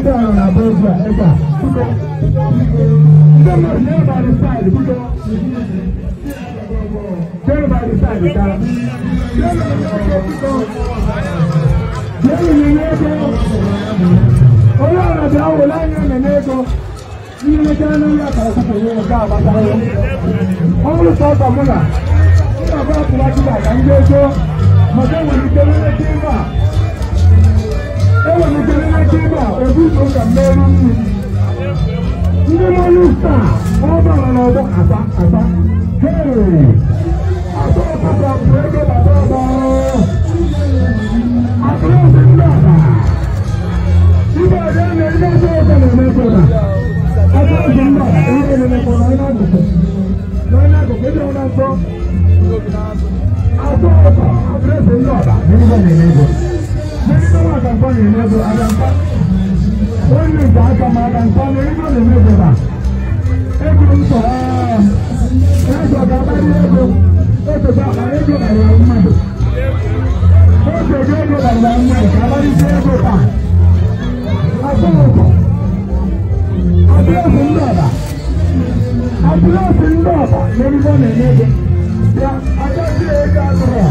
ndị ahụ na-abụ egwu a ebe a biko ndị mmadụ nye ba dị saịdị biko jere ba dị saịdị ka jere nye ego onye ọra bịa were anya mene ego ihe mmechi anụ ya kara kwụkwụ nye nke agbatara ọ bụrụ sọ ọsọ mụ na ndị ọbụla tụrụ achịcha ka ndị ego maka enwere ike nwere ike ịba ọba ebunso ka mmeri nri ndị mmanụ taa ọba na ọba aba aba hei aba aba bụ ego baba ọba akụrụsị ndị ọba ibe ọbịa na ndị ọzọ ọzọ na-emekwa akụrụsị ndị ọba ihe na-emekwa n'anya akụkụ n'anya akụkụ ịdị ọna nsọ akụrụsị ndị ọba na ihe na-emekwa ndị ọba na-emekwa onye nke aka m aka nke ọnụ ego na-eme obodo ego m sọrọ ga-akpali ego ototo akpara ego karịrị mmadụ ototo ego karịrị mmadụ ka akpalite ego taa atụrụkọ atụrụkọ ndị ọba atụrụkọ ndị ọba na ego na-eme ya agaghị ego atụrụ ya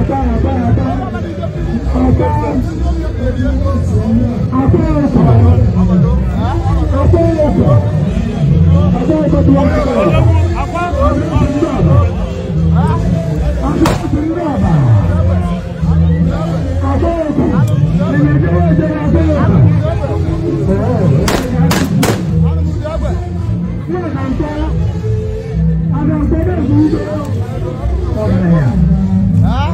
Apa? Apa? Apa? Apa? Apa?